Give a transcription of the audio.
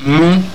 Mmh.